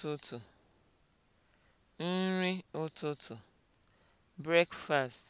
ụtụtụ nri ụtụtụ (breakfast)